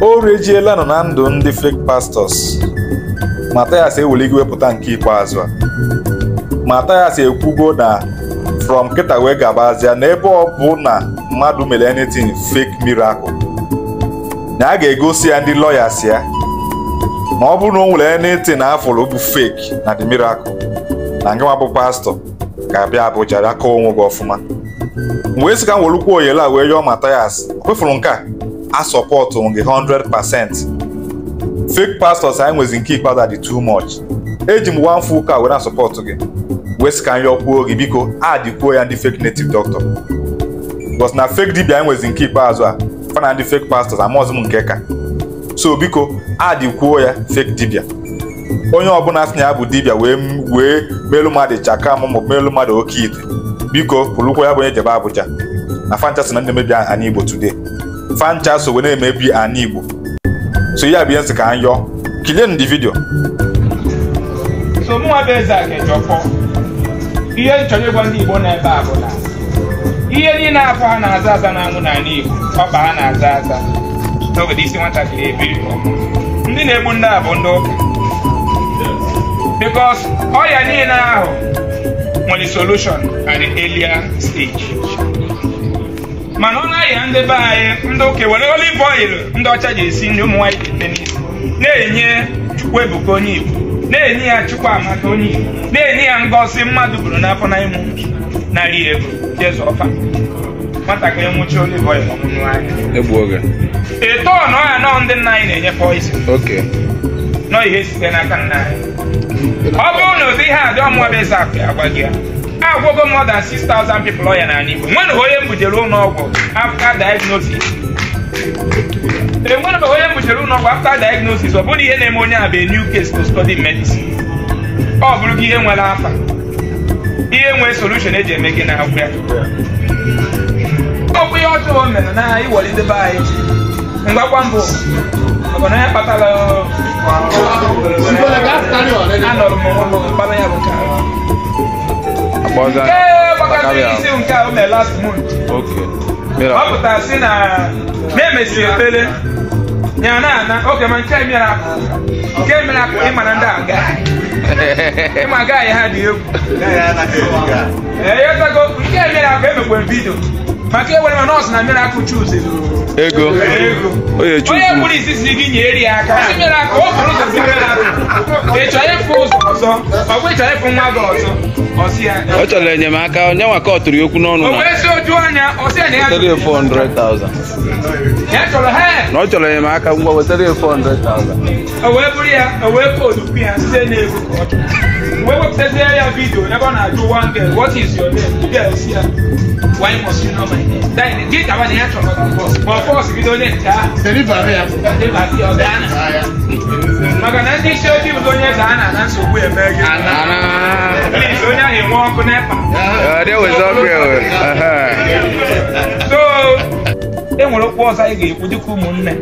o rejiela nọ na ndụ ndị fake pastors Mathias ewuligo wepụta nke ikpeazụ a Mathias ekwugo na from kịta wee gabazia n'ebe ọ bụ na mmadụ mere anything fake miracle na a ga-egosi ya ndị lawyers ya ma ọ bụrụ na ọ nwere anything afụrụ bụ fake na the miracle na nke bụ pastọ ga-abịa abụja bịa kọọ onwe gị ọfụma Mgbe esika ka m oyele a wee yọọ Mathias o kwefuru nke a asọpọtụ gị 100% fake pastors anyị nwezi nke ikpeazụ dị too much eji m one full car were asọpọtụ gị wee sị ka gị biko adịkwuo ya ndị fake native doctor bọs na fake dibia anyị nwezi nke ikpeazụ a fana ndị fake pastors amaọzụ m nke ka so biko adịkwuo ya fake dibia onye ọbụla sị na ya bụ dibia wee wee melụ mmadụ chaka m maọbụ melu mmadụ oke ite biko pụrụkwa ya bụ onye jebe Abuja na fantasy na ndị mebi aha n'Igbo today fancha so wee na-emebi ana igbo so ya bụ nsị ka anyị yọọ ndi vidio so mụnwa bụ eze a ga ihe m gwa ndị igbo na-ebe a na ihe niile afọ ha na-aza aza na anwụ n'ala igbo ọba ha na-aza aza n'obodo isi nwatakịrị ebiri ndị na-egbu ndị a bụ ndị oya bikos ọrịa niile ahụ nwere solushon at the earlier stage mana ọ na-ahịa ndị be anyị ndị ụka were olive oil ndị ọcha ji esi nri ụmụ nwanyị ga n'isi na-enye chukwu ebuka onye igbo na-enye ya chukwu amaka onye igbo na-enye ya ngosi mmadụ bụrụ n'afọ na ịmụ narị ego jeze ọfa nwatakịrị nwụchi olive oil ọmụmụ anya eto na ọya nọ ndị nna anyị na-enye poison nọ ihe site n'aka nna anyị ọ bụrụ na ozi ihe adị ọmụwa bụ eze akụ ya gwa gị ya agwọgo more than 6000 people ọya n'ala Igbo nwere onye mbujere ụlọọgwụ after diagnosis onye mbujere ụlọọgwụ after diagnosis ọ bụrụ ihe na-eme onye a bụ new case to study medicine ọ bụrụ ihe nwere afa ihe nwee solution eji eme gị na agwụ ya ọ ihe ọjọọ o mere na iwelidebe anyị ngwakwa mbụ ọbụ na ya kpatara anọrọ m ụlọ mkpara ya bụ nke nke ọ pụtara sị na emesiri efere ya na ana oge ma nke mere nke mere akụ na ndị aga ịma ha dị egwu nke mere akụ emekwe vidio maka ewere mana nọọsụ na miracle chuze ego onye kpụrụ isisi gị nyere ya aka o bụrụ ụzọ si miracle ịchọ ịfụ ụzọ ọzọ ọgwa ịchọ ịfụ nwa gị ọzọ ọ chọrọ enyemaka onye nwa ka ọ tụrụ okwu n'ọnụ na ọ chọrọ enyemaka ngwa wetara ya 400,000 o wee bụrụ ya o wee koodu ya site n'ego ka ọ chọrọ wee wepụtazie ya vidio ọ na-ajụ one girl what is your name si ya why must you know my dị ndị isi ojii onye gị onye ahụ enwe ọkụ okwu ọzọ anyị ga-ekwu dịka ụmụnne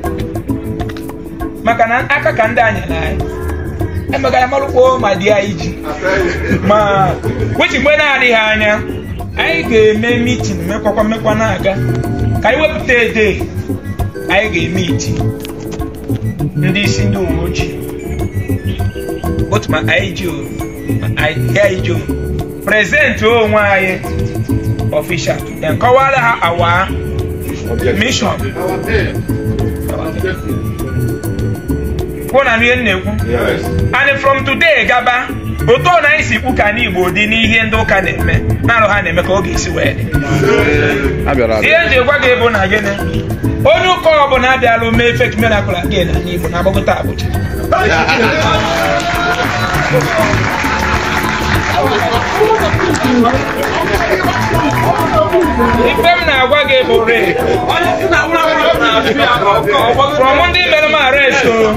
maka na aka ka ndị anyị na anyị marụkpo ma ma ah, eh, ah, na-adịghị anya anyị ga-eme mitin mekwakwa mekwa na-aga ka anyị wepụta ede anyị ga-eme iti ndị isi ndị uwe ojii otu ma anyị ji prezentị onwe anyị ọfishal then kọwara ha awa mishọn kwụ na ihe m na-ekwu and from today gaba otu ọ na anyị si kpuka n'Igbo dị n'ihe ndị ụka na-eme na-arụ ha na-eme ka ọ ga-esi wee dị ihe eji egwa gị bụ na gịnị onye ụka ọ bụla abịala mee fek miracle again na Igbo na agbagota Abuja ife m na-agwa gị bụ re ndị mere m arest oh,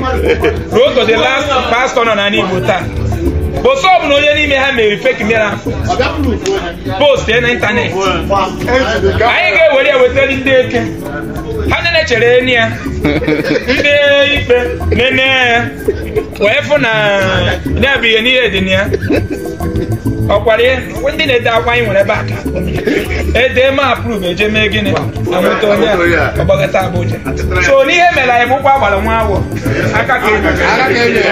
ruo to pastọ last pastor nọ na Igbo taa ofe ọbụla onye n'ime ha mere fake miracle post na ịntanetị anyị ga-ewere ewetara ndị eke ha nene chere enyi ya ndị ikpe nene ya wee fụ na ya bụ ihe n'ihe dị na ya ọkwara ya ndị na-ede akwa anyị nwere ebe aka ede ma aprove eje mee gịnị na moto onye ọgbagata abụja so n'ihe mere anyị bụ ụkwụ agbara nwa awọ aka ka enyi